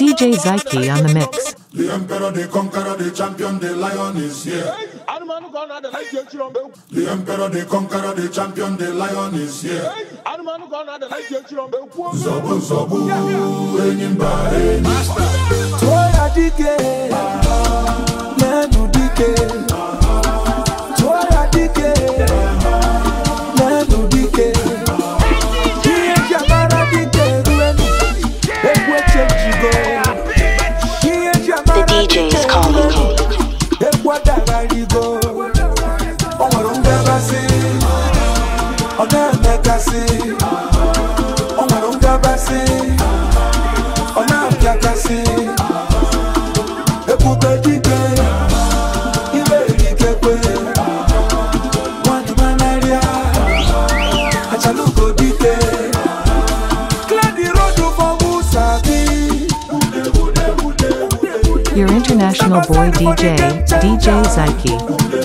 DJ Zyke on the mix. The emperor, the conqueror, the champion, the lion is here. The emperor, the conqueror, the champion, the lion is here. Zobu, zobu, enyimba, enyimba. Toya dike, lenu dike. Toya dike, Your international boy DJ, DJ Zyke.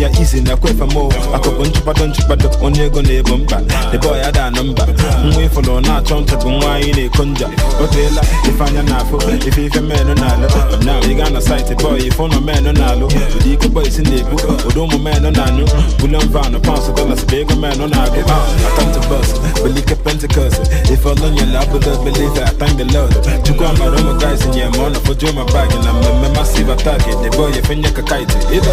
ya izi na-ekwefe m akụkụ nchụkpado nchụkpado onye ego na-ebo mba debe ya da na mba nwa ịfụlụ na-achọ ncha bụ nwa anyị na-eko nja o teela ife anya na-afụ ife ife menụ na-alụ na ị gaa na saịtị bọị ife ụnọ menụ na-alụ ụdị ike bọị si na-ebu ụdị ụmụ menụ na-anụ bulen vanụ paụnsụ dọlas bụ ego menụ na-agụ atọntụ bọs belike pentikọs ife ọlọnyela abụdo belive atangị lọd chukwu amara ụmụ gaịs nye ma for nọfoju my bag and I'm na mmemme masiv atak debe oyi fenye ka kaịtị ibe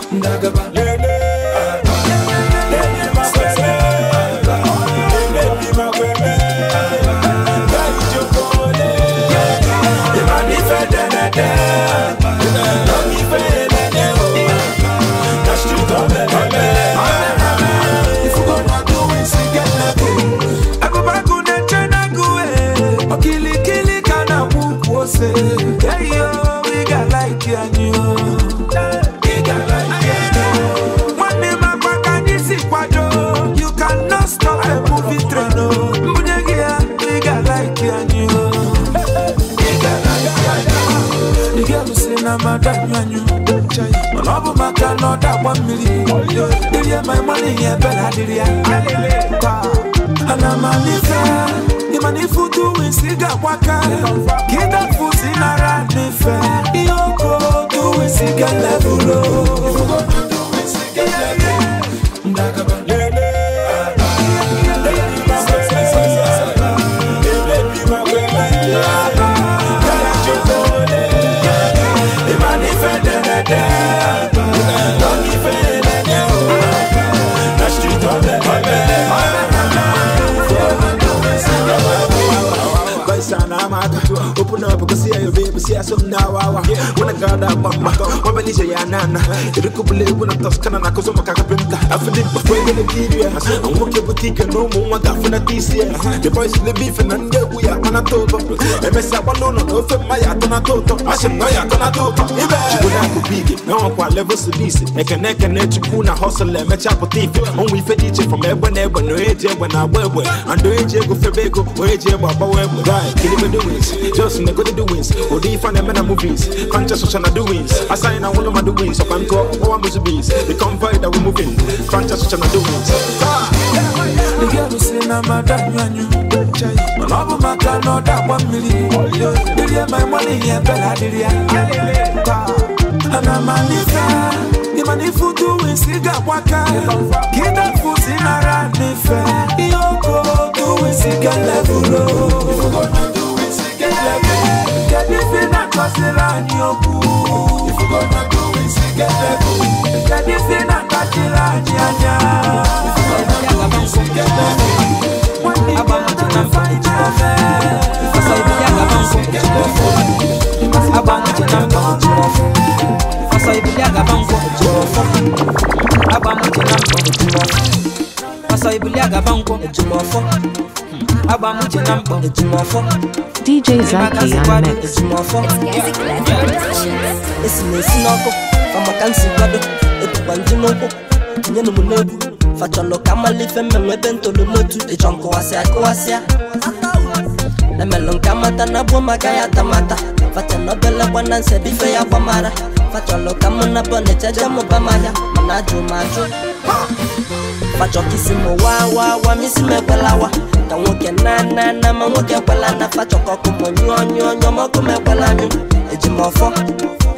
na gaba One akwa mmiri dịrị ma ịmanụ ihe ebela dịrị ya ana m anife ịmana ifu tuwi si ga-akwa ka ka ịdafu si nara n'ife ihe oko tuwi si ga level. ya so na wa wa Wana gada mama Wamba nije ya nana Iriku bule wana toskana na kuzo makaka pinta Afidi bafwe gane kiriya Mwoke butika numu mwaka funa tisiya The boys in the beef and nge uya kana toto Emesa wanono ofe maya tona toto Ashim noya tona toto Ibe Chibuna kubigi Nawa kwa level sibisi Eke neke ne chukuna hustle eme chapo tifi Onwe ife diche from ebwe nebwe No eje ebwe na webwe Ando eje ego febeko Oeje ebwe abawe ebwe Right, kili me do wins Just nigga do wins Odi ifa on them in the movies. Conscious ocean of doings. I sign all of my doings. So I'm called all my bees. The convoy that we're moving. Conscious ocean of doings. The girl who say na madam yanyu. My love my car no that one million. Did you my money yeah bella did ya? And I'm a nigga. Imani futu wisiga waka Kida fuzi nara nife Yoko tu wisiga levulo Yoko tu wisiga levulo get the feeling and cause the land you cool. If you go to go, we see get the cool. Get the feeling and cause the land you yeah. If you go to Masa ibu agaba nkwụ ejumọfọ agba m uche na mkpọ DJ Zaki on mix ejumọfọ esi na esi n'ọkụ famaka nsi kwado ebukwa ndị n'ụkwụ tinye na m n'ebu fachọlụ ka malife mmenwe ebe ntolomotu ịchọ nkụwasịa kụwasịa emelụ nke amata na gbuo maka tamata fata na obele gwana nsebife ya gbamara facholo kama nabonecha jamo bamaya manajumaju fachokisimo wawawa misimekwelawa ka nwoke na ma na koko nwoke kwelana fachọkọkụmụ nyụọ nyụọ nyọmọkụmekwelanyụ ejimọfọ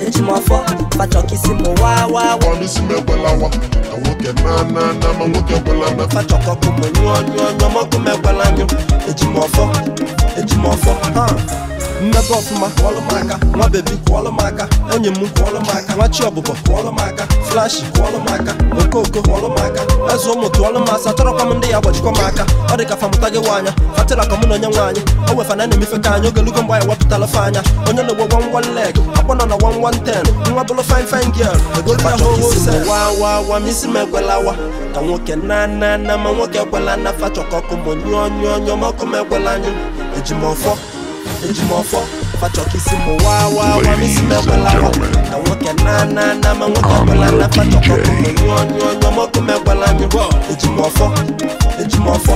ejimọfọ fachọkisimo wawawa misimekwelawa ka nwoke na ma na nwoke kwelana fachọkọkụmụ nyụọ nyụọ nyọmọkụmekwelanyụ ejimọfọ ejimọfọ ha mmepe ọfụma kwọlụ m aka nwa bebi kwọlụ m nwa chi ọbụbọ kwọlụ m okoko kwọlụ eze ụmụ tụọlụ m asa chọrọkwa m ndị ya gbajikwa m aka ọ dị ka famụta gị nwaanya fatịra ka mụ na onye nwaanyị o wefana na-emefe ka anyị ogelugo mgbe anyị wepụtala fe anya onye na ogbo gwa wan leg akpọ nọ na wa wan ten nwa bụlụ fin fin girl egolu ya hoho se wa wa ka nwoke na na na ma nwoke ekwela na fachọkọkụ monyụọ nyụọ nyụọ ma ọkụ m ekwela anyị eji ejimọfọ fachọkisi mụ wa wa wa misi mekwela hụ na nwoke na na na ma nwoke ọbụla na fachọkọkụ mụ nyụọ nyụọ nyụọ mọkụ mekwela nyụ ejimọfọ ejimọfọ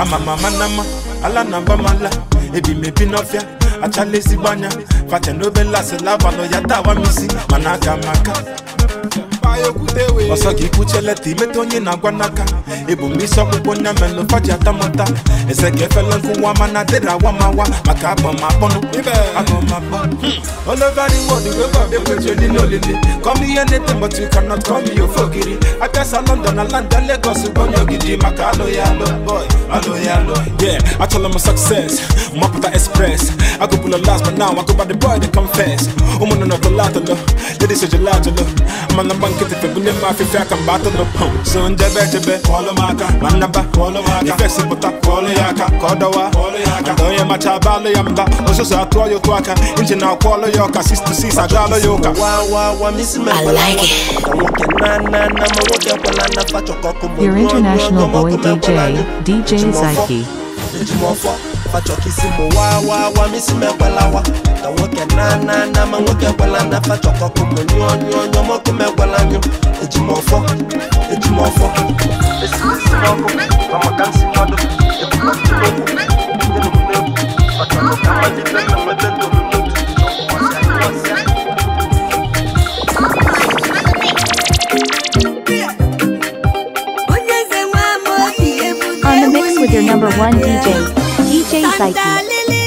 ama mama nama ala na mba mala ebi mebi n'ọfịa achala ezigbo anya facha n'obe lasị labalụ ya tawa misi mana ọsọ gị kwucheleta imeta onye na-agwa ịbụ m isi ọkpụkpụ faji atamụta ese ka efela nkụwa mana dịrị awamawa maka abọmakpọnụ ekwechioli n'olili kọm ihe na-ete but you cannot call me your fogiri abịasa london na landa legos bụ onye ogidi maka alụghị alụ boy alụghị alụ yeah achọla m success mapụta express agụbụla last but now agụba the boy the confess ụmụnụ nọtọlatọlọ ladies ejelajelọ mana mgba nkịtịfe bụ ndị mma afịfịa aka mgbe atụrụ pụm so njebe echebe kpọọlụ m aka ma nnaba kpọọlụ m aka ifesipụta kpọọlụ ya aka ka ọ dọwa kpọọlụ ya aka onye macha abalụ ya mba ọsụsụ atụọ ya otu aka nchi na akwọọlụ ya ọka 66 agaalụ ya ụka Your international boy DJ, DJ Zyke. Jumofo fachọkisi mụ wa wa wa misi wa. ka nwoke na na na ma nwoke gwela na fachọkọkụ mụ nyụọ nyụọ nyụọ mọkụ megwela nyụ ejimọfọ ejimọfọ esi isi n'ọkụ ma maka nsi mmadụ ebukọtụ n'okwu ndị n'okwu n'egwu maka nwoke amalite na mmebe ndụ with your number one DJ, DJ Psyche.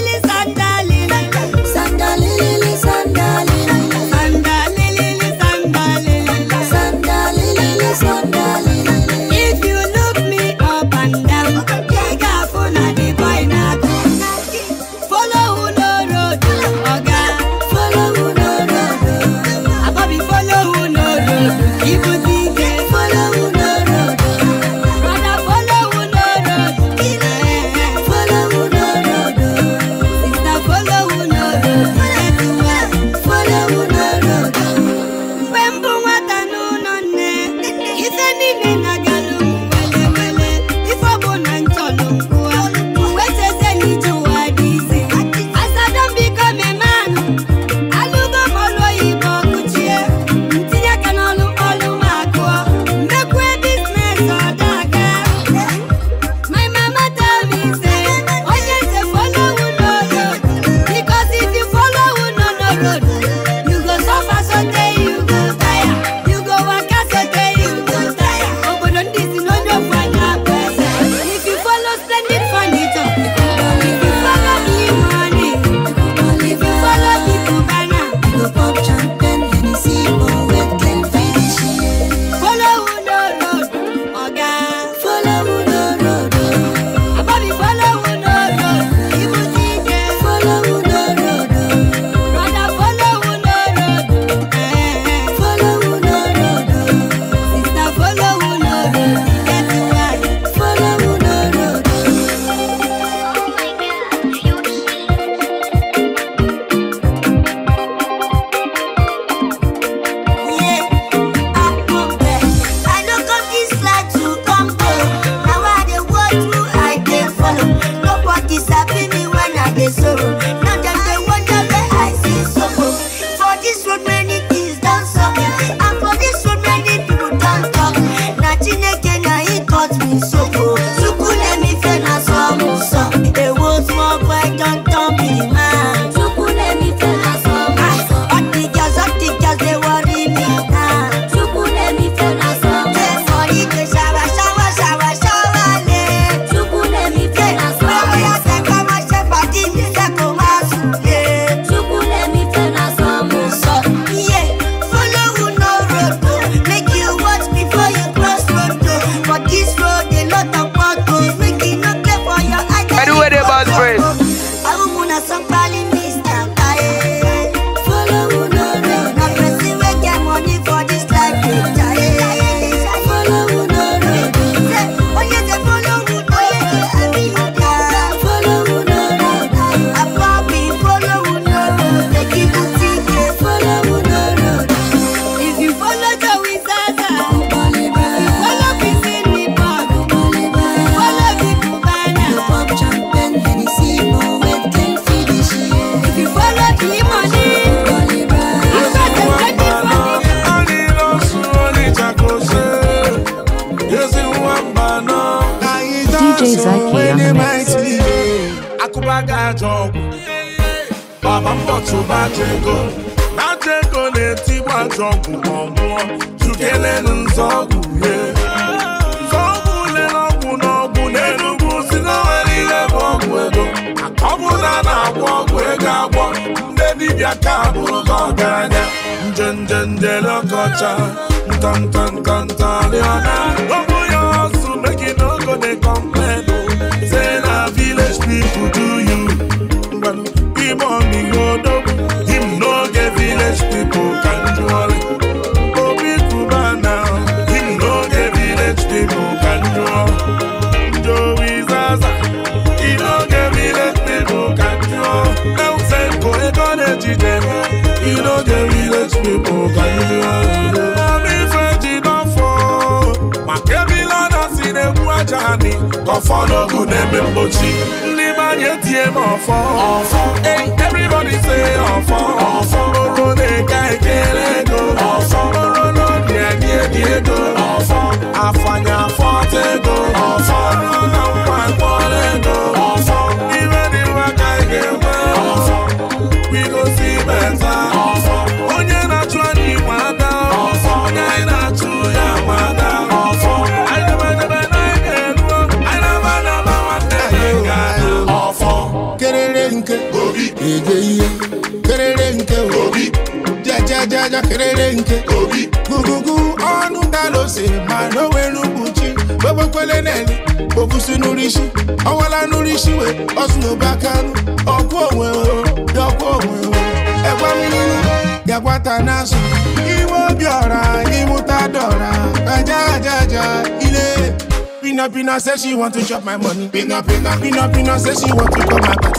ejeje kerere nke obi gugugu ọnụ dalose ma n'onwere mkpuchi gbogbokpele neli obusi n'urisi ọwala n'urisi we ọsụnobakanụ ọkwụ onwe dọkwa onwe ẹgwa mmiri gakwata n'azụ iwe obi ọra ịmụta dọra aja aja aja ile Pina Pina say she want to chop my money. Pina Pina Pina Pina say she want to chop my money.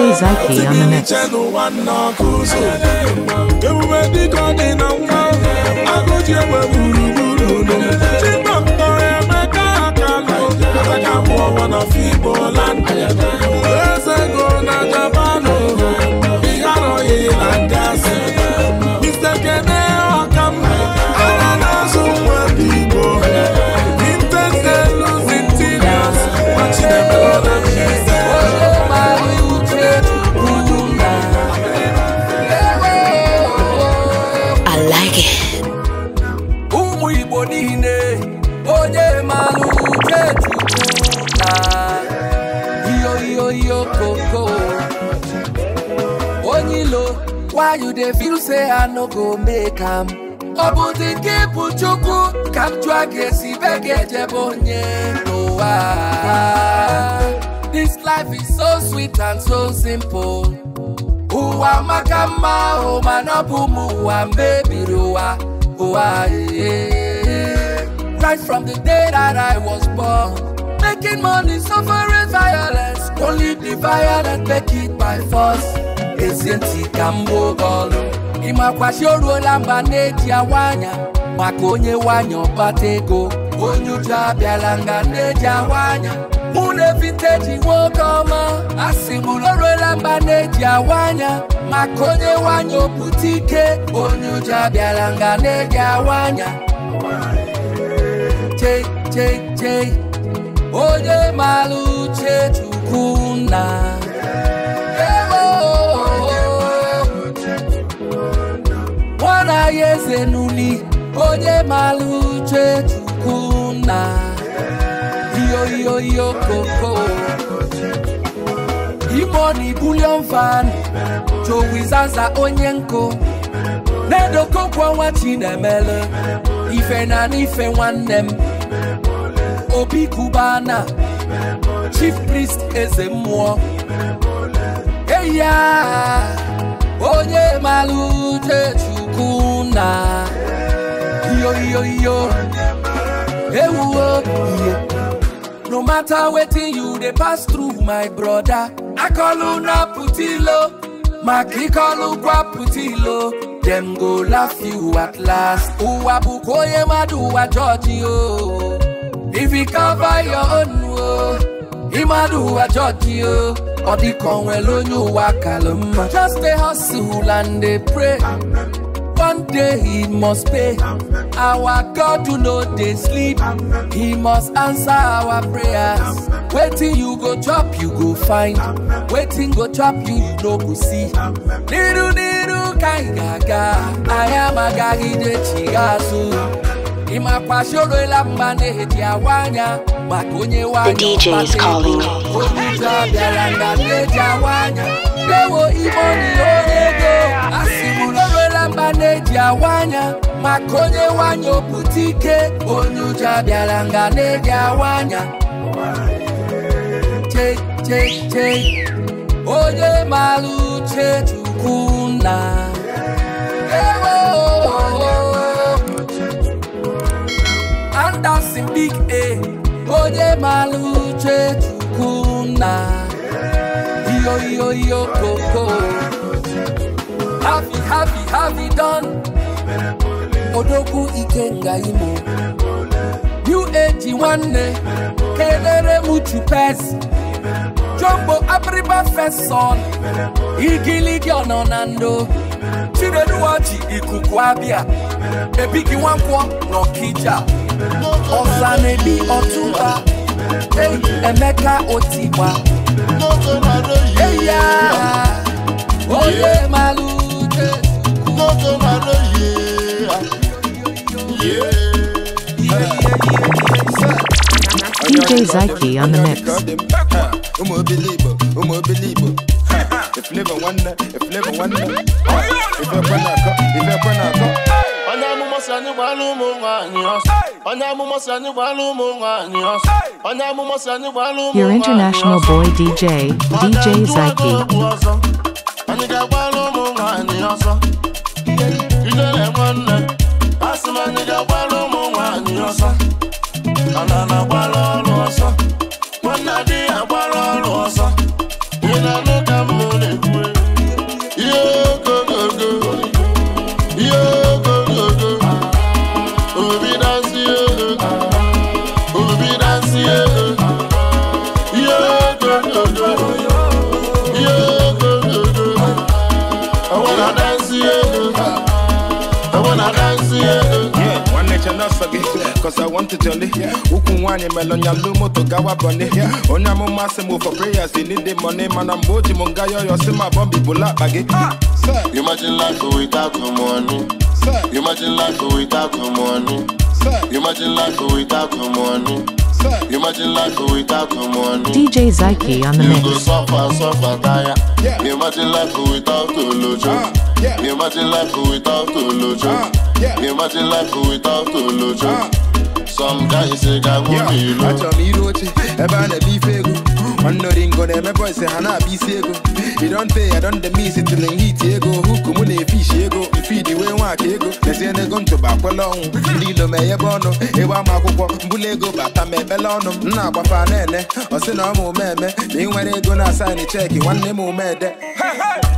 i Zyke on the mix. ewuwe dịka ọ dị na nwa agụji egbe ka m ọ bụzi nke ịbụ chukwu ka m jụọ gị this life is so sweet and so simple ụwa maka mma ahụ mana ọ bụ m ụwa mebiri ụwa ụwa right from the day that I was born making money suffering violence only the violence make it by force isn't it, Kambo gbuo ị makwa si oruola mba na-eji awa anya maka onye nwanyị ọkpata ego onye uju abịala nga na-eji awa anya mụ na ji nwoke ọma asị m o ruola mba na-eji awa anya maka onye nwanyị opụta ike onye uju abịala nga na-eji awa anya onye maara uche chukwu nna onye eze n'uni onye maara uche chukwu na iyoiyoiyo koko imoni bulion fan jowizaza onye nkụ na-edokokwu ọnwa ife na n'ife nwanne m obi kubana chief priest eze mmụọ eya onye maluche chukuna. ọ̀la. Yoyoyo, ewu o, iye. No matter wetin you dey pass through, my broda. Akọlu na putilo, ma kíkọlu gwa putilo. Dem go laugh you at last. Uwa bukoye maduwa jọji o. If you cover your own o, imaduwa jọji o. Ọdí kan wẹ̀ lóyún wa kà ló mọ̀. Just dey hustle and dey pray. Amen. One day he must pay. Our God you know they sleep. He must answer our prayers. Waiting you go chop, you go find. Waiting go chop, you you no go see. Niru niru kai gaga. I am a gagi de chigasu. The DJ is calling. maneji awanya makonye wanya oputike onyuja bialanga neji awanya cheche onye malu uche chukwuna andasi big a eh. onye malu uche chukwuna iyoiyoiyo koko yeah. happy happy happy done odogwu ikenga imo new age nwanne kedere muchu pes Jumbo abriba feson igiligi ọnọ na ndo chireduwachi ikuku abịa ebigi nwankwọ n'ọkija ọza na-ebi ọtụba emeka otigba eya Oye malu. DJ Zyke on the mix. Your international boy DJ, DJ Zyke. anyị ga-agbara ụmụ nwaanyị ọsọ ijele nwanne asị m anyị ga-agbara ụmụ nwaanyị ọsọ ana na-agbara ọrụ ọsọ cause I want it only. Ukuwani melonya lumo to gawa bunny. Onya mama se move for prayers, they need the money. Man, I'm boji mungayo, yo see my bumbi bula baggy. Sir, imagine life without no money. Sir, imagine life without no money. Sir, imagine life without no money. Sir, imagine life without no money. DJ Zyke on the mix. You go suffer, suffer, tire. Yeah. Imagine life without no lojo. Uh, yeah. Imagine life without no lojo. Uh, yeah. Imagine life without no lojo. Uh, some guys ga achọrọ m iru oche ebe a na eme ife ego nwanne Oringo na-eme ha na-abịa isi ego i don pay i don miss hit ego huku mụ na-efish ego mfidi wee nwaka ego lezie n'ego ntụba akwela ọnwụ ndị ilo ma enyebe ọnụ ịgba ama akwụkwọ mbụla ego bata ma ebele ọnụ oh. m na-agbafa na-ene ọ sị na ọ ma ome eme na ị nwere ego na asaịn cheki nwanne m omede oh,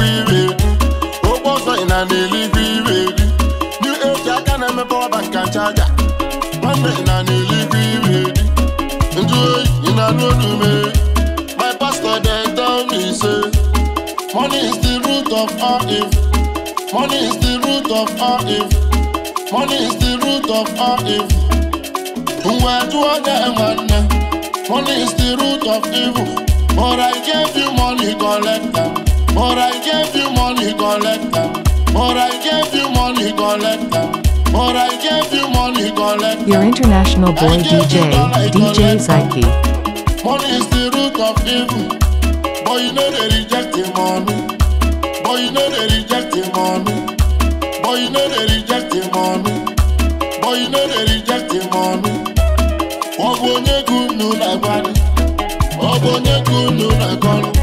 offering and a liquid Into it, in a no do me My pastor then tell say Money is the root of all evil Money is the root of all evil Money is the root of all evil Money is the root of evil But I gave you money collector But I gave you money collector But I But I gave you money Your international boy DJ, DJ Psyche. Money is the root of evil. Boy, you know they reject money. Boy, you know they reject money. Boy, you know they reject money. Boy, you know they reject money. Ọbụ gụnụ na-agbalị. gunu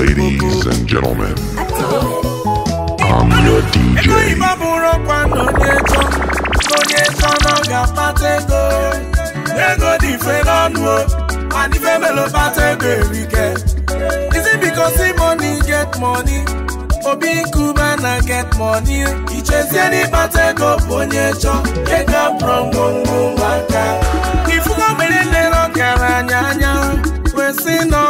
Ladies and gentlemen, I'm your DJ. And if I'm a Is it because the money get money? get money. go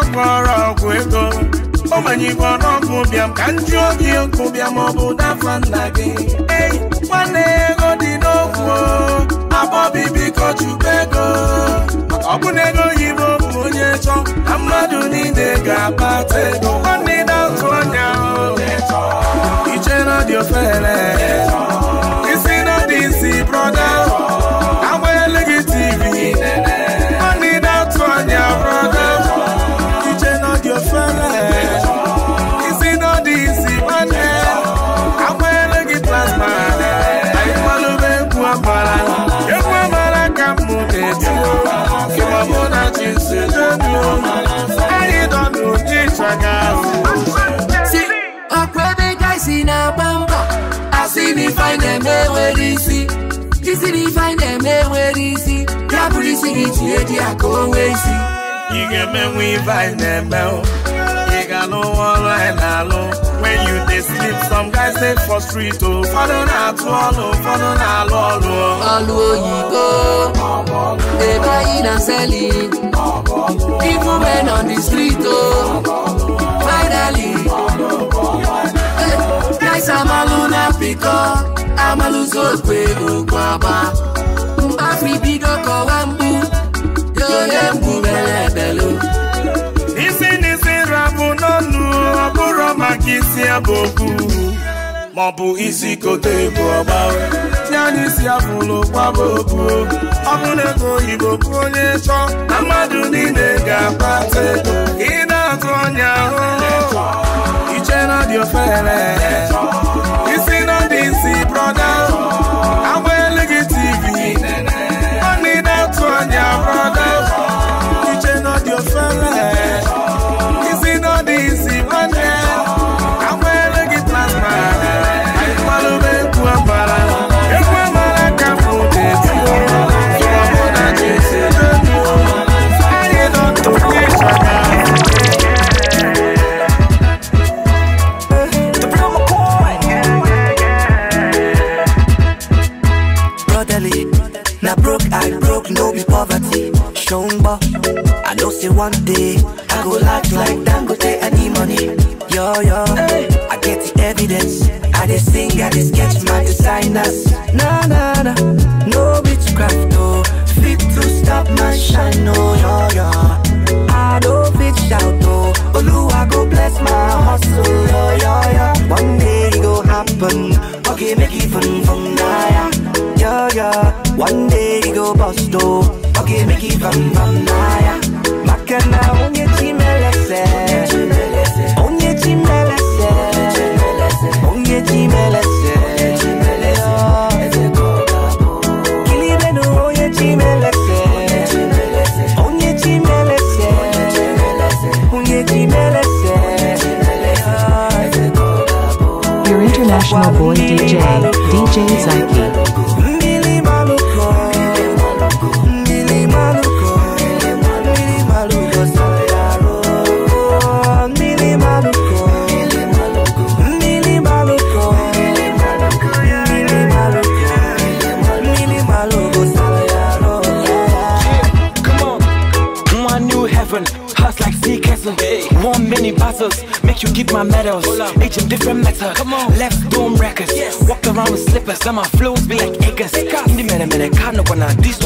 from no Omani ọnụọgụ bịam ka nju obi ọkụ bịam ọ bụ dafa nna gị ei nwanne ya ego dị n'okwu abo biko chukwu ego ọ bụ na ego oyibo bụ onye chọ na mmadụ niile ga-akpata ego nwanne na otu anya iche na dị ofere isi na dị si na-agba mba asị na ifeanyị na-eme nwere isi isi e na ifeanyị na-eme nwere isi ya bụrụ isi gị tinye di ya ka o nwee isi ị ga-emenwe ife anyị na when you dey sleep some guys dey for street o ụfọdụ na-atụ ọlụ ụfọdụ na-alụ ọlụ ọlụ oyibo dey buying and selling even men on the street o Esi amalụ n'Afrịka, amalụzi okwe okwu agba. Mgbafri bido kọwa mgbu, yoye mgbu mere ebelu. Isi n'isi rabụ n'ọnụ, ọ bụrụ maka isi abụ okwu, maọbụ isi kote egwu ọgba si anyị si afụlụ kwaba okwu ọbụla ego oyibo kwụ onye chọ na mmadụ ga-akpata ego ị na-atụ ọnya ahụhụ iche na dị ofere isi na dị nsi brọda agba gị tv ọ na-atụ ọnya brọda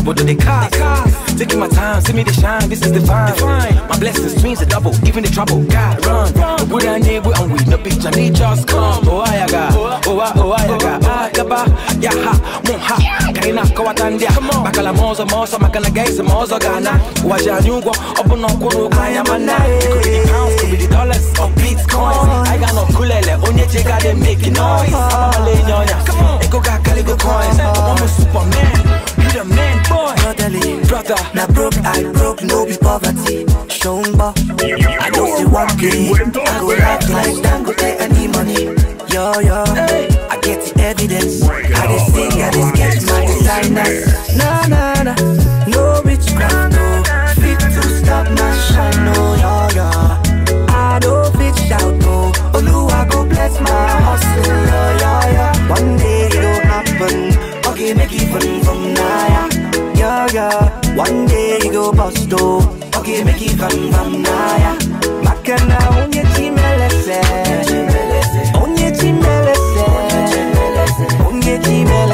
what do they cost? They cost. Taking my time, see me the shine, this is divine. divine. My blessings, dreams are double, even the trouble. God, run. run. But I need, we on with no bitch, I need just come. Oh, I got, oh, I, oh, I got, ah, yaba, yaha, moha, kaina, kawatandia. Bakala mozo, mozo, makana gaze, mozo, gana. Waja nyugo, open no kono, kaya mana. Could be the pounds, could be the dollars, or bitcoins. I got no kulele, onye chega, they making noise. I'm a lay nyonya, eko ga kaligo coins. I'm a superman the man, boy. Brotherly, brother. Now broke, I broke, no be poverty. Shomba. I know you want me. I go act like Dangote, take any money. Yo, yo. Hey. I get the evidence. I just sing, I just catch my designers. Nah, nah, nah. No witchcraft, no. Fit to stop my shine, no, yo, yo. I don't fit shout, no. Oluwa go bless my hustle, yo, yo, yo. One day it'll happen. Okay, make it fun naya, yeah, yeah. One day you go bust though. okay, make it come, come naya. Makana onye chimelese, onye chimelese, onye chimelese.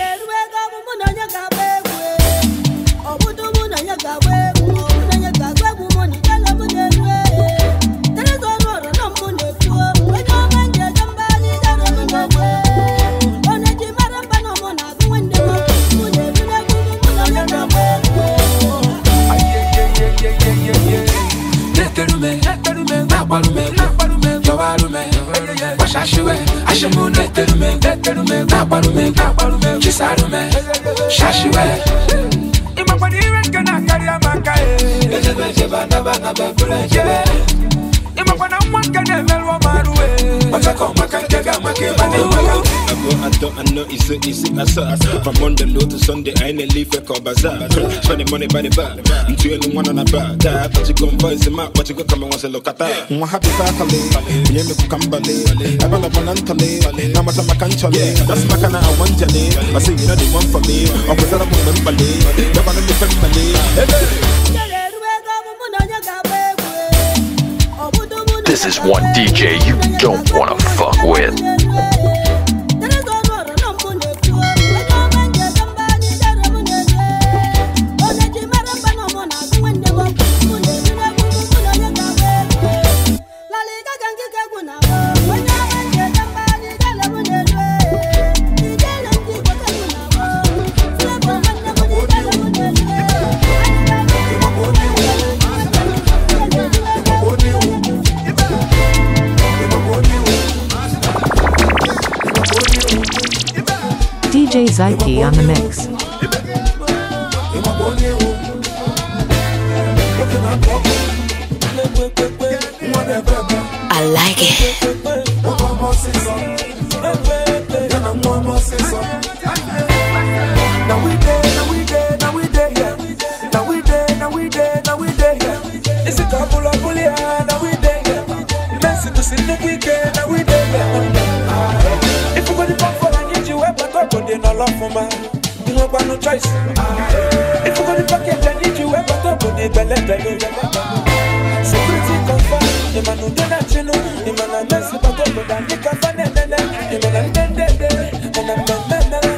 shashiwe ashimu netelume netelume kakwarume kakwarume chisarume shashiwe imakwadiwe rekena kari makae ejebe jeba naba naba kule jebe imakwana mwa nkene melwa maruwe Makako, makanjaga, make money, maka I go I don't I know From Monday low to Sunday I ain't leave leaf a call bazaar Spending money by the bar I'm two and one on a bag. That but you go and voice him out But you go come and once a look at that Mwa happy fatale Nye me kukambale Ebala banantale Namata makanchale That's my makana I want jale I say you know the one for me I'm Okwezara mumbembale Yabana ni fembale Hey This is one DJ you don't wanna fuck with. DJ Zyke on the mix. I like it. ọlọ́fọ̀nba kí ló panu choice. ìfúkọ́ ní package ẹ̀ níjú ẹ̀ bá tó bòde bẹ̀lẹ́bẹ̀lẹ́. security confam ìmọ̀nà dẹ́nà chinú ìmọ̀nà mẹ́sì bá tó bòde àníkà fánẹ̀ ìmọ̀nà ndẹ́ndẹ́ndẹ́ ìmọ̀nà mẹ́mẹ́mẹ́.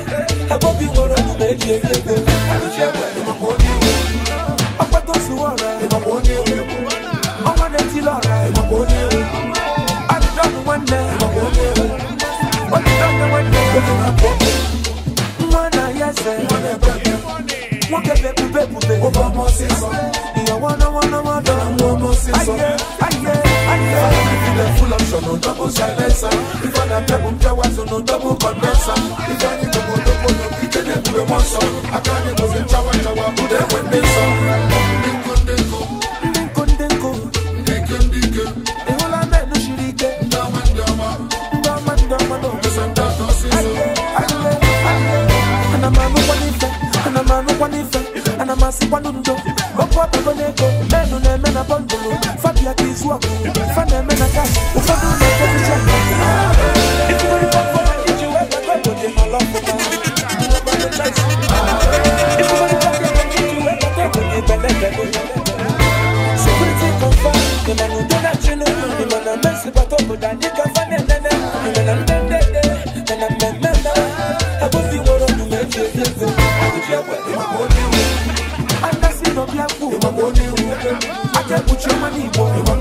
agbóbi wọ̀rọ̀ méjì èyí ègbè àlùjẹ́ wẹ̀ ìmọ̀kò ní ìwé. ọpẹ́ tó sùn I wanna, wanna, wanna, wanna see some. I get, I get. Full option, no double silencer. If I don't double jawers, no double condenser. If I need to go double, no kita ne kule monso. I can't go in chawa chawa, but then when they saw. Dinko dinko, dinko dinko, dinko dinko. The whole I met no shirike. Dama dama, dama dama no. Missing that no see so. I get, I get. And I'm a no one if, and I'm a no one if, and I'm a si one what put your money boy.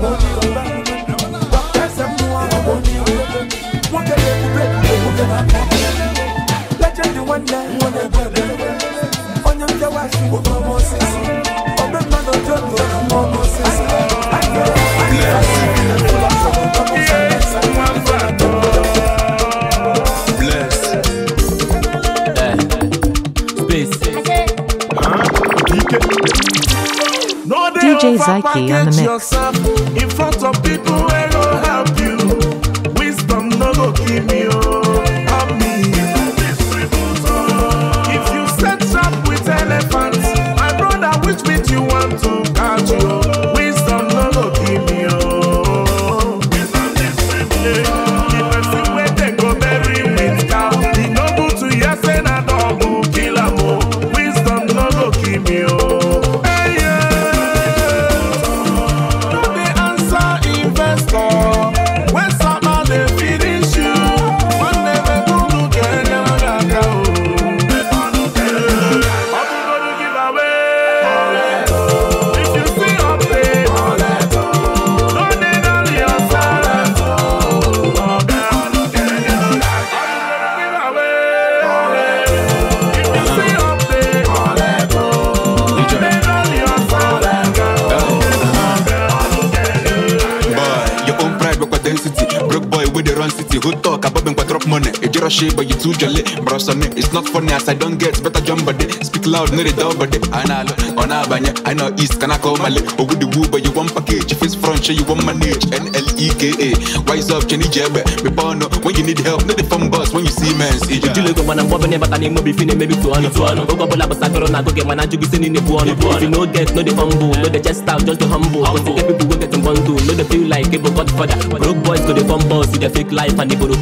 Package on the mix. yourself in front of people fâché, bah you est tout gelé, It's not funny as I don't get better jump but they speak loud, no they don't but they analog on banya I know East, can I call my lip? but with the woo, but you want package. If it's front, show you want manage. N L E K A. wise up, Jenny Jebbe. Me up when you need help, no the fun boss when you see man. See you. Ya. You look when I'm bobbing, but I need more before maybe to on. Go go bola, but I go I Go get my nanju, go send in the one. If you no get, no the fumble, no the chest out, just the humble. But the people go get in one do, no the feel like for that Broke boys go the fun boss, see the fake life and the borrow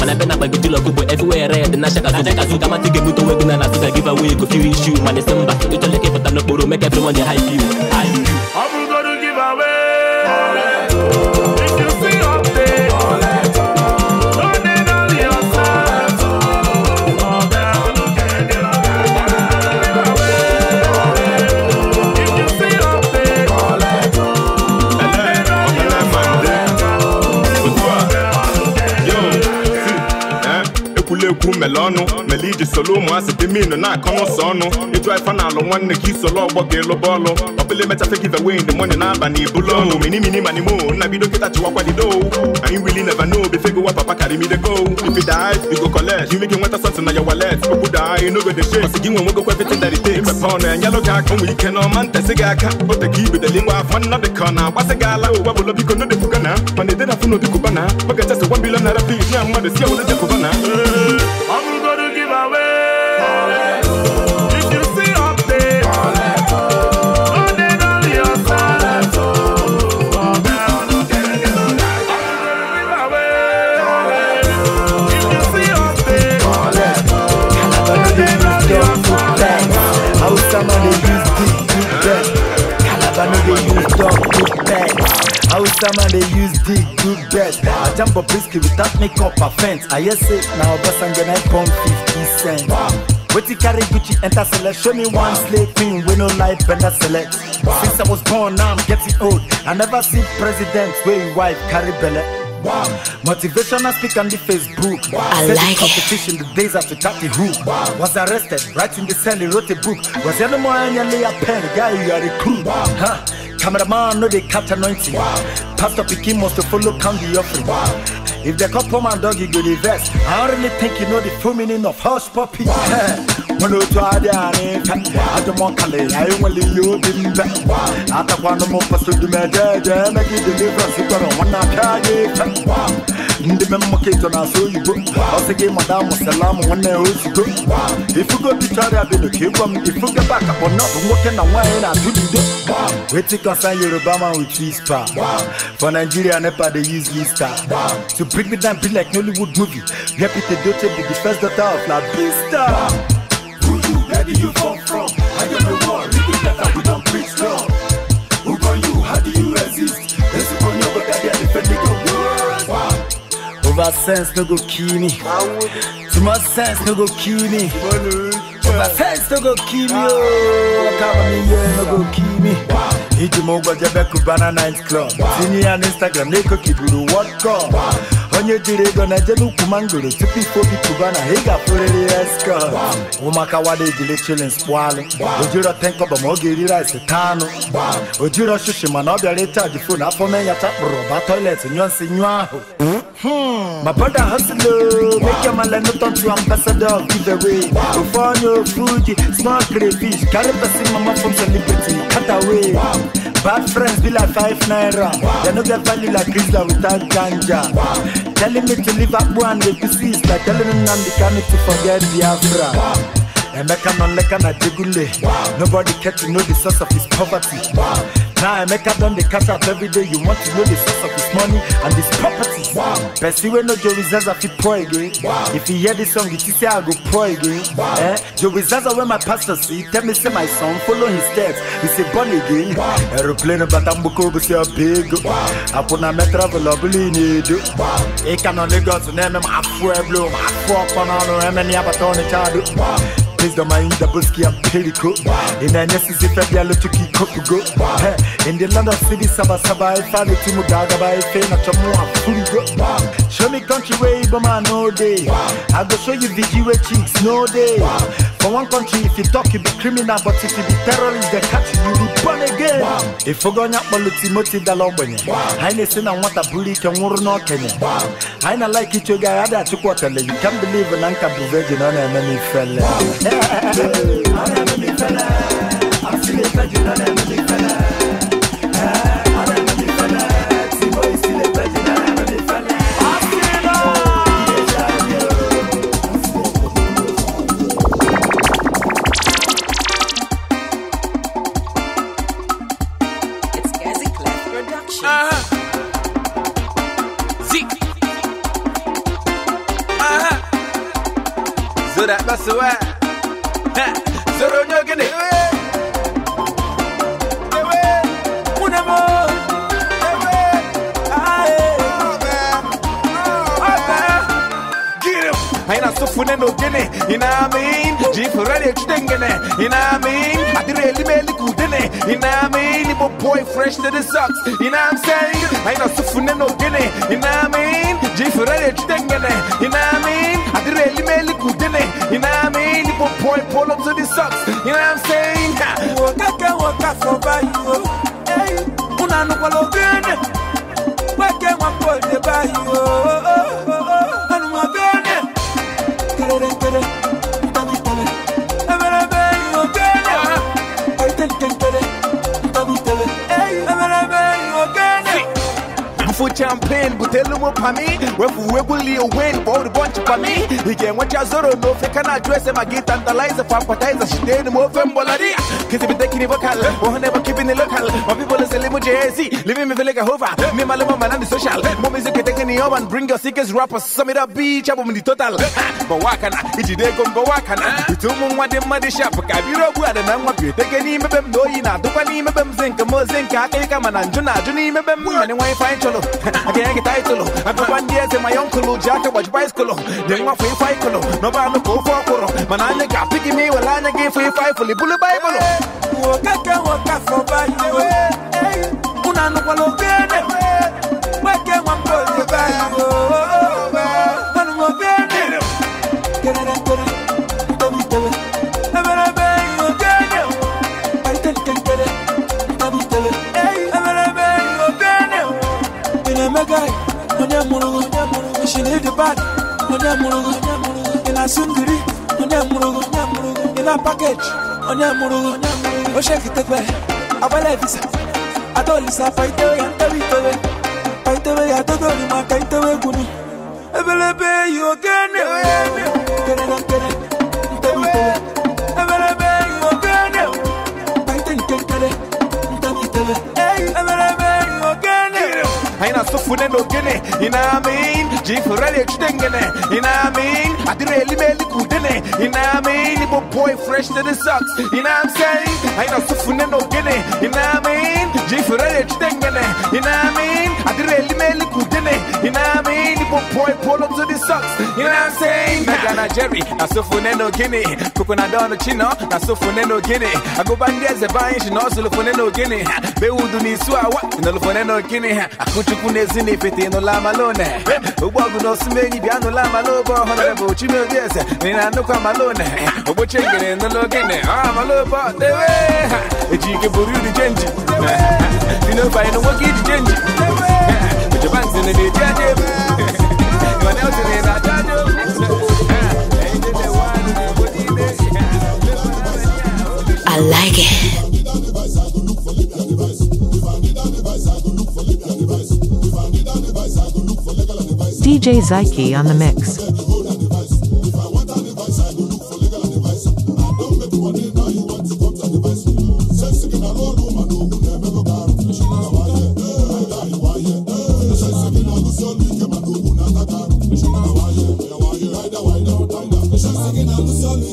And I been up, I go to look everywhere, red and I shaka, I shaka, So come and take a photo with me and I give away a few issues. My December, somebody. You tell the kid for time no borrow, make everyone high view. High view. ekwu mele ọnụ mele iji solu ụmụasị dị minu na-akọ n'ụsọ ọnụ ịjụ ife na-alụ nwanne ka isolu ọgbọ ga-elụba ọlụ ọbụla emechafe gị away in the morning n'abalị ibulu minimini manimo nna bido kịta chiwakwadido anyị wili never know befe gowa papa go if you die you go collect you make nweta something na your wallet okwu daa no go dey shake ọsị gị nwe nwegokwa everything that it takes imepe ọnụ ya nyelụ gị aka onwe ike n'ọma ntesị gị aka ote ka ibedeli nwa afọ nnọdị ka ọ na-agbasị gị ala ụwa bụlọ biko no dị kwuga na de edena funu n'obi kwuba na oge chesị 1 billion naira fees na mmadụ si ewere de kwuba na Some man they use dick do best. I jump up risky without makeup fence. I hear it now Obasanjo I pump 50 cents. What you carry Gucci enter select? Show me one slave queen with no life bender select. Since I was born now I'm getting old. I never see president way you wife carry belly. Wow. I speak on the Facebook. Wow. I Set like competition it. the days after Chatty Who. Wow. Was arrested, writing the cell, he wrote a book. Was any more any a pen, guy, you are a crew. Wow. Huh. Cameraman no they catch anointing. Wow. Pastor Pekin must to follow count the offering. Wow. If they couple man dog, you go the verse. I don't really think you know the full meaning of house puppy. Mono to Adiane, Adamon Kale, I only you didn't bet. Ataquano to de Medea, make it deliverance, you got on one night. Ndi me mo kito na so you Ose ke madam salam one o you go. If you go to Chari abi no ke gwam if you get back up on not work na wan na do do. Wait till concern Yoruba man with this star. For Nigeria never they use this star. To bring me down be like Nollywood movie. Repeat the dote be the first daughter of La Vista. Who you ready you for? Over sense no go kill me. Too much sense no go kill me. Over sense no go kill me. Oh. come me yeah, no go kill me. Hit him over the back of Banana Night Club. See me on Instagram, they could keep you the what come. onye jiri ego na-ejele ukwu mangoro tupu ife obi tụba na ị ga-apụrịrị ya skọt ụmụaka wada ejile chilins kpụalụ ojiro tenkọba ma ọ ga-eri rice ojiro shishi mana ọ bịara ịchaji fon afọ me ya chakpụrụ ba toilet nyụọ nsị nyụọ hmm? Hmm. My brother hustle, make your man no talk to ambassador giveaway. Go for your Fuji, small crayfish, carry person mama from celebrity, cut away. Bad friends be like five naira. They no get value like Grisla without ganja. Telling me to leave up one with the sister. Telling me I'm the kind to forget Biafra. And I can on like an adjugule. Nobody care to know the source of his poverty. Now I make Emeka done the cash up every day. You want to know the source of this money and this property. Wow. Percy when no Joe Zaza fi pray again. Wow. If you hear this song, you see I go pray again. Wow. Eh? Joe Zaza when my pastor see, tell me say my son follow his steps. He say born again. Wow. Aeroplane but I'm buko but you big. Wow. I put na me travel up need. Wow. E can only go to name him. I full bloom. I fuck on on him and he have a ton Wow. pèse dans ma une double ski à Pellico. In a nécessité fait bien le tuki kokugo. In the land of city, saba saba, if I let you mudaga by fame, not your more fully go. Show me country way, but man, no day. I go show you VG way, cheeks, no day. For one country, if you talk, you be criminal, but if you be terrorist, they catch you, you be born again. If you go nyap mo lutimoti dalombenye, haine sina wata buli ke nguru no kenye. Haina like icho ga yada atuku watele, you can't believe an anka bu virgin on a many fella. On a many fella, I'm still a virgin on a many fella. swear. sufune no gene, you know I mean? Jif ready extengene, you know I mean? I did really make it good, you know I mean? If boy fresh to the socks, you know I'm saying? I know sufune no gene, you know I mean? Jif ready extengene, you know I mean? I did really make it good, you know I mean? If boy pull up to the socks, you know I'm saying? Waka waka for by you, hey, unanu kwalo gene, wake one boy by you. Gracias. Mfu me. butelu mo pami Wefu a win Bodi bonchi pami Hige mwacha zoro no feka na dress Ema gita ndalize Fampatize shiteni mo fembolari Kisi biteki ni vocal Ohane mo keeping it local My people is a limo JZ Living me feeling a hover Me malumo manani social Mo music teke ni over And bring your sickest rappers Samira beach in the total Bawakana Ijide gombo wakana Itumu mwade mwade shop Kabiro buwade na mwapyo Teke ni mebem Doyi na dukwa ni mebem Zinka mo zinka Kika mananjuna Juni mebem Mani wanyi fine cholo I can't get title. I go one day to my uncle, Jack, watch bicycle. Then my free fight, no bad no go for a Koro. Manana got picking me while I get free fight for the bullet Bible. Walk up, walk up for bad. Unano, walk up. bag, onya murugu, in a sungri, onya murugu, in a package, onya murugu, o oh, shake it away. Abala visa, adolisa fight away and tell it away. Fight away, I don't know, my kite Ebelebe, you again, you again, you again, you again. sufune no gene you know what I mean jifurele chudengene you know what I mean adireli meli kudene you know what I mean ibo boy fresh to the socks you know what I'm saying aina sufune no gene you know what I mean jifurele chudengene you know what I mean adireli meli kudene money. You know what I mean? You put boy pull up to the socks. You know what I'm saying? Megana Jerry, I so funeno guinea. Coconut down the chino, I so funeno guinea. I go back there, the buying, she knows the funeno guinea. They would do this, so I want the funeno guinea. I could you put this in if it ain't no lama lone. A walk no smelly, piano lama lobo, honorable chimel, yes. And I know come alone. A butcher in the login. I'm a lobo, the way. A jig of the change. You know, by no work, it's change in the day, I like it. DJ Zyke on the mix.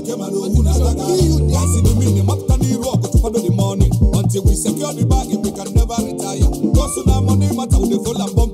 get my own Azaga. Guys in the minute, up to the rock to follow the money. Until we secure the bag, we can never retire. Cause now money matter, we follow and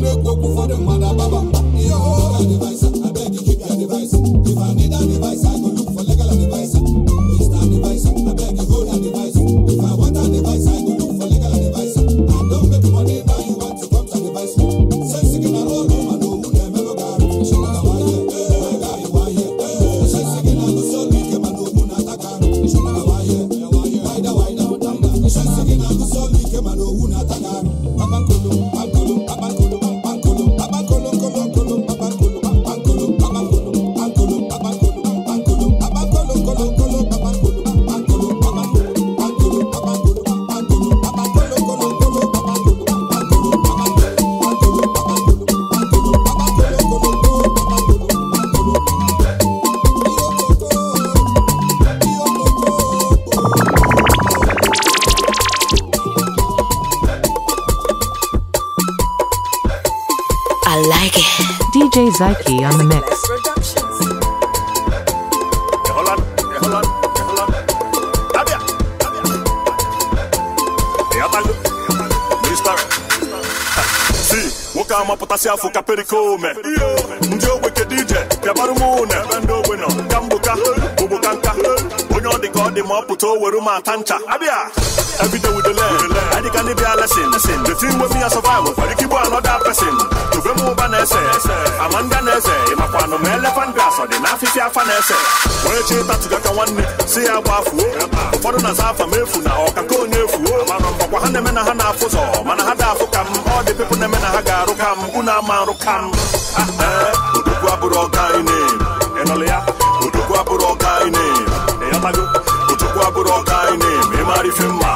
go make go for the mother baba. Yo, and if ka ome ndị ogbenye dj bịagbara m ụnụ ebe ndị ogbe nọ ka mgboka ogboka nka onye ọ dị ka ọ dị ma ọ pụta o were m ata ncha abịa ebido with the leg anyị ka ndị bịa lesin the thing wey me a survive for ike igbo another person tobe m ụba na-ese ama ndị na-eze ịmakwa anụ ma elephant grass ọ dị n'afịfịa afa na-ese onye chi tatuga ka nwanne si ya gbafuo ụfọdụ na afa m efu na ọkaka onye efuo ọkwa ha na-eme na ha na-afụ ụzọ mana ha da afụ ka m ọ dị pepụ na-eme na ha daro kam rukam, maro kam ah, eh, Udugu wa buroga ini Enolea Udugu wa ya, buroga ini Eyamagu Udugu wa buroga ini Memari fima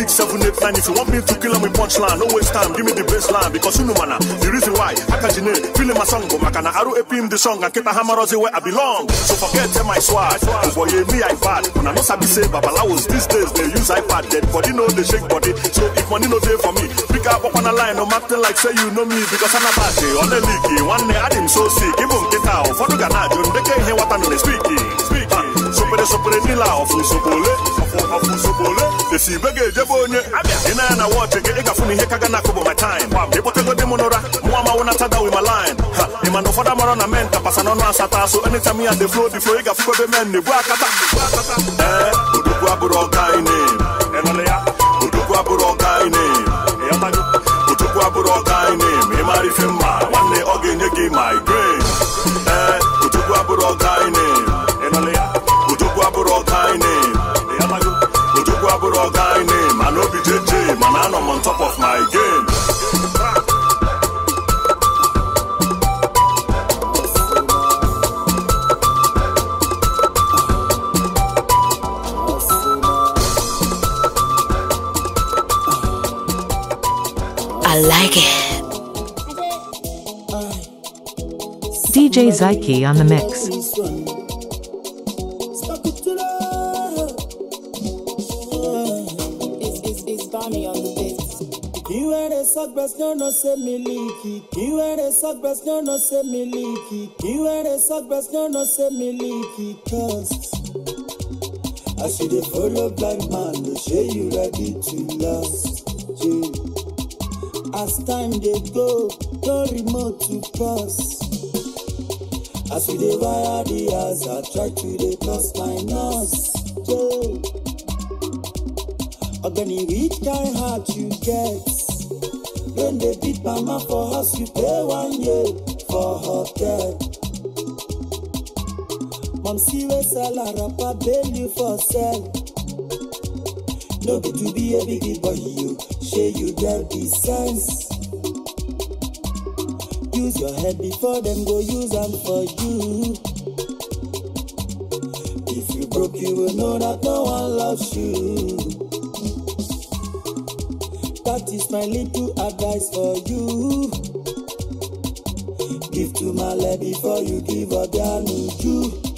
six, seven, eight, nine. If you want me to kill him with punchline, no waste time. Give me the baseline because you know mana. Ah, the reason why I can't you know, feeling my song, but makana aru epim the song and keep a hammer where I belong. So forget eh, my swag. Cause oh, boy, me I iPad. When I know sabi say babalawos these days they use iPad. Dead body know they shake body. So if money no day for me, pick up on a line. No matter like say you know me because I'm a party on the leaky. One day I didn't so sick. Give him get out. For the Ghana, June, they can't hear what I'm speaking. sopere sopere nila ọfun sobole ọfun ọfun sobole esi ibege ejebe onye ina na wọọchị gị ị gafu n'ihe kaga na my time ịkpọtego di m n'ụra mụ amawo na tada wi my line ha ị ma na ụfọdụ amarọ na men tapasa n'ọnụ asata so anytime eh, ya dey flow the flow ị gafu ebe men na-ebu akata ee odogwu abụrụ ọga ine odogwu abụrụ ọga ine odogwu abụrụ ọga ine ma ị mara ife mma nwanne ọ ga-enye gị my grace ee odogwu abụrụ ọga ine and I'm on top of my game. I like it. DJ Zyke on the mix. Sogras no no se miliki, kiwere sogras no no se miliki, kiwere sogras no no se miliki, cause as you dey follow blind man, they say you ready to last. Yeah. As time they go, no remote to pass. As we dey wire the eyes, I try to dey cross my nose. Yeah. Ogani, which kind heart you get? when they beat mama for house you pay one year for hotel see wey sell arapa bail you for sale. no good to be a big boy you share you get the sense use your head before them go use them for you if you broke you will know that no one loves you That is my little advice for you. Give to my Male before you give Obianuju.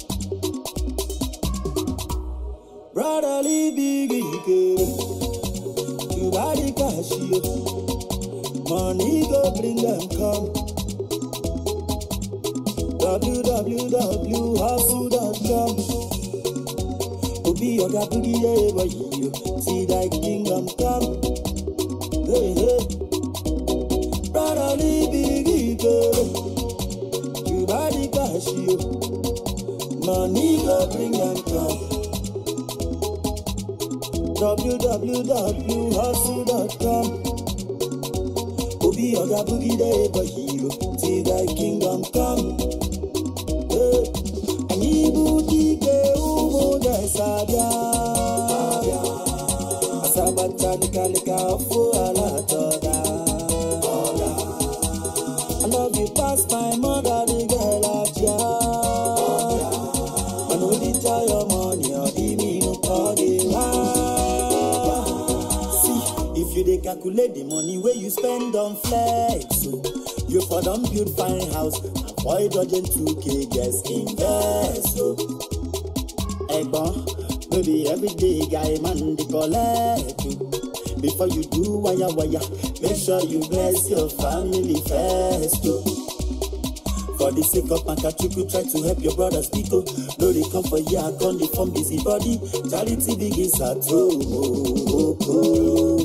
wake up and catch you. try to help your brothers people. Oh. No, they come for you, I gone, they form busy body. Charity begins at home. Oh, oh, oh.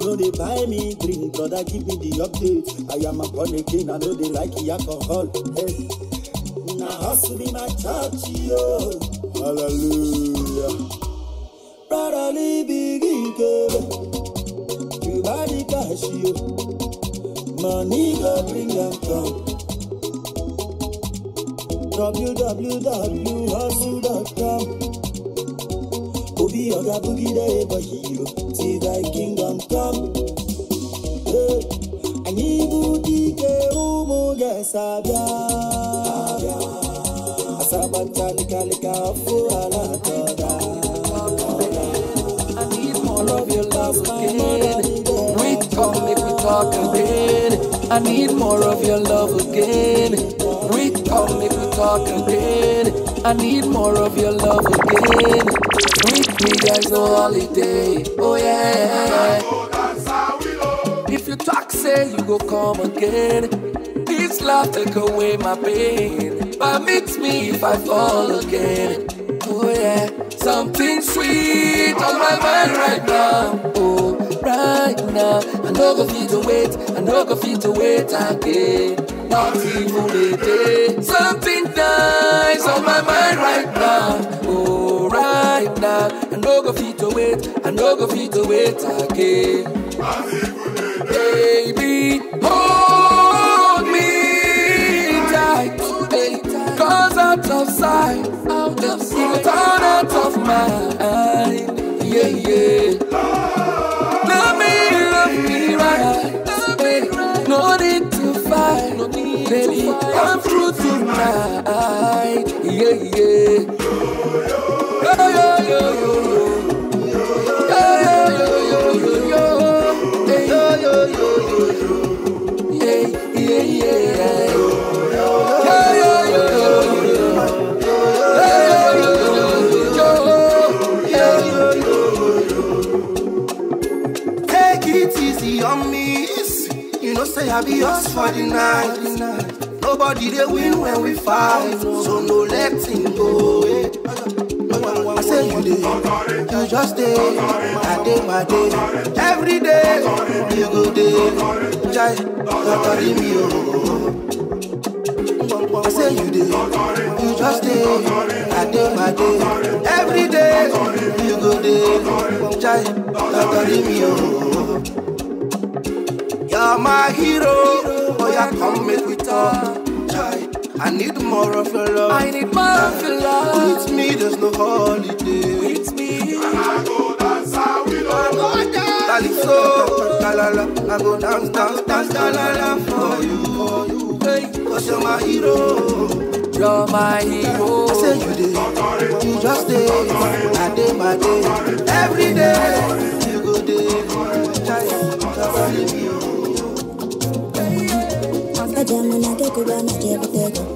No, they buy me drink, brother, give me the update. I am a born again, I know they like the alcohol. Hey. Now, hustle be my church, yo. Hallelujah. Brotherly begin, girl. You buy the cash, yo. Money go bring them down. www.hustle.com. Obi Oga Boogie the see thy kingdom come. Hey, Toda. I need more of your love again. We talk, make we talk again. I need more of your love again come make we talk again. I need more of your love again. With me, there's no holiday. Oh yeah. If you talk, say you go come again. This love take away my pain, but meet me if I fall again. Oh yeah, something sweet on my mind right now. Oh, right now, I know go feel to wait, I know go feel to wait again party for the day. Something dies on my mind right now. Oh, right now. I no go fit to wait. I no go fit to wait again. Party for Baby, hold me tight. Cause out of sight, out of sight, out of mind. Yeah, yeah. come through tonight. Yeah, yeah. Yo, yo, yo, yo, yo. Take it easy on me. You know, say I'll be yours for the night. Nobody they win when we fight, so no let him go. Eh. I say you day, you just day, I day my day, every day you go day. Jai, you carry me oh. I say you day, you just day, I day my day, every day you go day. Jai, you carry me oh. You're my hero, boy oh, I come make we talk. I need more of your love. I need more of your love. With me, there's no holiday. With me. And I go dance, I will I go dance. Calypso, la I go dance, dance, dance, la la for you, for you. Hey, cause you're my hero. You're my hero. I say you did. You just did. I day, my day. Every day. You go day. Giant. Giant. Giant. Giant. Giant. Giant. Giant. Giant. Giant. Giant. Giant. Giant.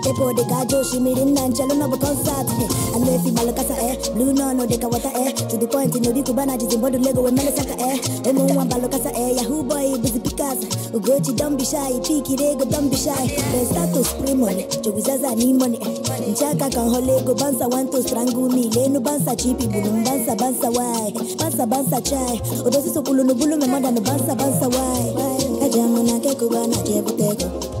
こでが上司みりんなんちゃらのぶコンサートへあれフィマルカサへルーノのでかわたへとでポイントのびくばなじずんぼるレゴウェメレサカへエモンワンバルカサへヤフーボーイブズピカサウゴチドンビシャイピーキレゴドンビシャイレスタトスプリモネチョウィザザニモネンチャカカンホレゴバンサワントストラングミレノバンサチピブルンバンサバンサワイバンサバンサチャイオドシソクルノブルメマダのバンサバンサワイカジャムナケクバナチェブテゴ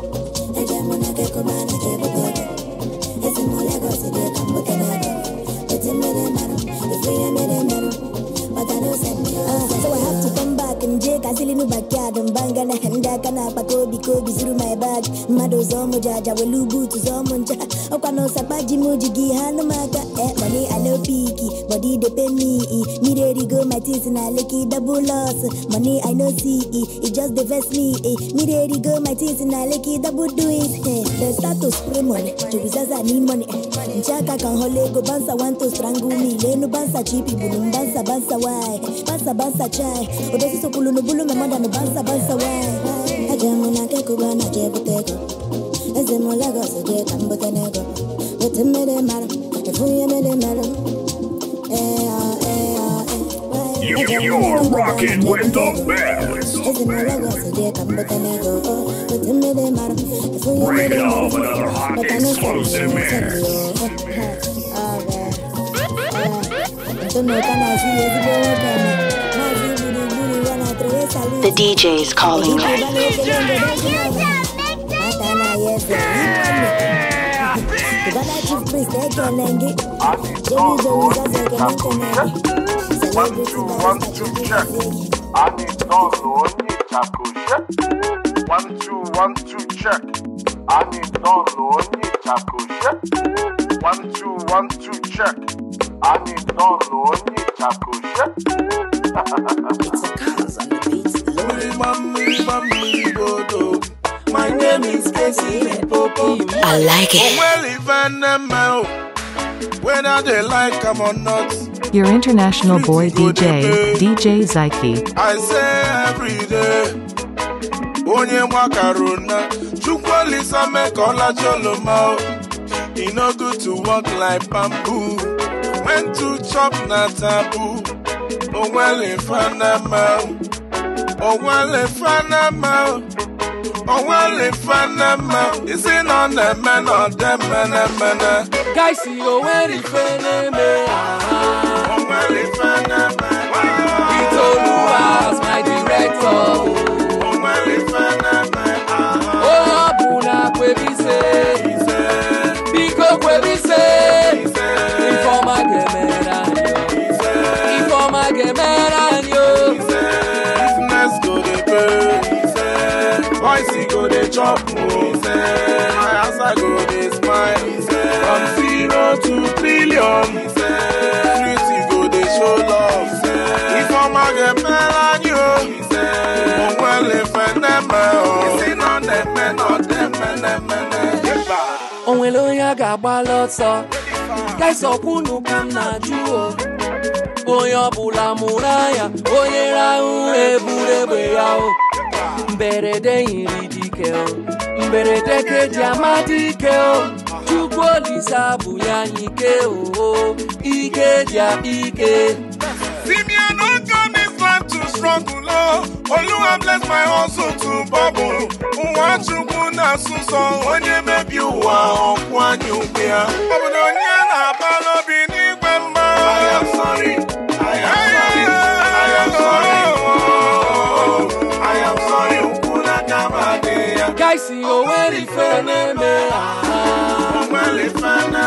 Feeling backyard and bangana handa kana pakobi kobi through my bag. Mado zomo jaja welubu to zomonja. Okwano sapaji mujigi hanumaka. Eh, money I no peaky, body they pay me. Me ready go my teeth and I double loss. Money I no see, it just divest me. Me ready go my teeth and I licky double do it. Eh, the status promo, to be zaza need money. Chaka holego bansa want to strangle me. Lenu bansa chipi bulum bansa bansa why. Bansa bansa chai. so me bansa bansa why. Ajamu na tenego. maro. Efuye maro. You, you're rocking with the best. Break it another hot exclusive mix. The DJ is calling me. One, two, one, two, check. I need download, need One, two, one, two, check. I need download, need One, two, one, two, check. Ani tonu ni takusha. My name is Casey I like it. Well, even now, whether they like them or not. Your international boy DJ, DJ Zyke. I say every day. Onye mwakaruna, chukwalisa mekola choloma. It no good to walk like bamboo and to chop na taboo. Oh well if in Panama. Oh well if in Panama. Oh well if in Panama. Is it on the man or the man a man? Eh? Guys, oh well a man. Oh well if I'm in Panama. It's all my director. chop moves as I go dey smile from zero to billion. street go dey show love ifeoma get mela ni o onwele feneme o isina neme na demenemene. onwere onye a ga-agbalị ọsọ kaisọkwunu ka m na-ajụ o onye ọbụla mụrụ anya onye rahụ eburu egbe ya o mberede yiri di ike o mberede ka eji ama dike o chukwu olisa bụ ya ike o ike dia ike Simeon don tell me plan to struggle o Oluwa bless my hustle to bubble nwa chukwu na-asụ nsọ onye mebi ụwa ọkwụ anya ukwe ya ọ bụ na onye na-aba n'obi n'igwe mma isi o nwere ife na-eme ha o nwere ife na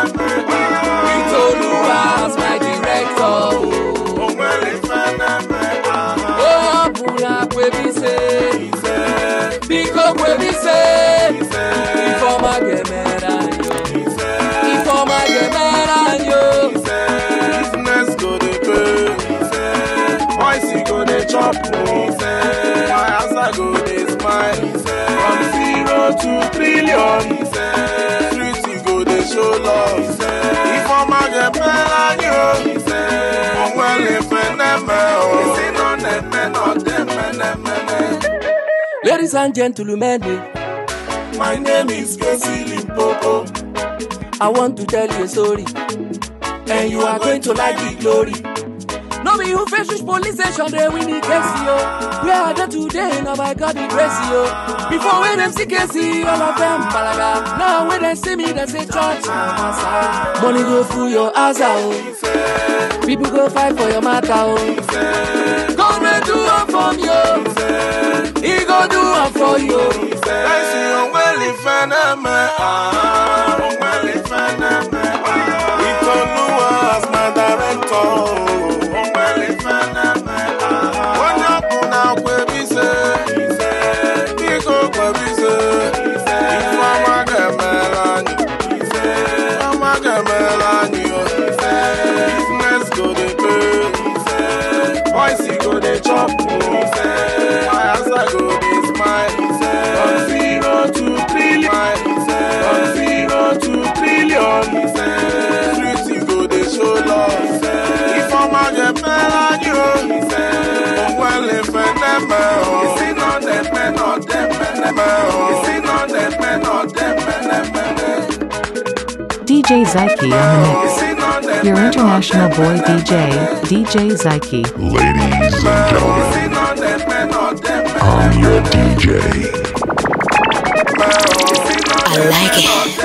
Ladies and gentlemen, my name is Casey Limpopo. I want to tell you a story, and you are going to like the glory. No be who fresh police station, they win the case, yo. We are there today, now by God the bless, yo. Before when them see Casey, all of them balaga. Now when they see me, they say church, Money go through your ass, oh. People go fight for your matter, oh. God will do it for you. He go do am for you. I òǹwẹ̀lì fẹ́nẹ́ mẹ́. Òǹwẹ̀lì fẹ́nẹ́ mẹ́. With Oluwa as my director. DJ Zyke on the mix. Your international boy DJ, DJ Zyke. Ladies and gentlemen, I'm your DJ. I like it.